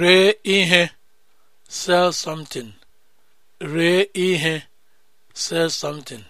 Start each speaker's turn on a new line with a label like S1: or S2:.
S1: ree ihe sell something ihe sell something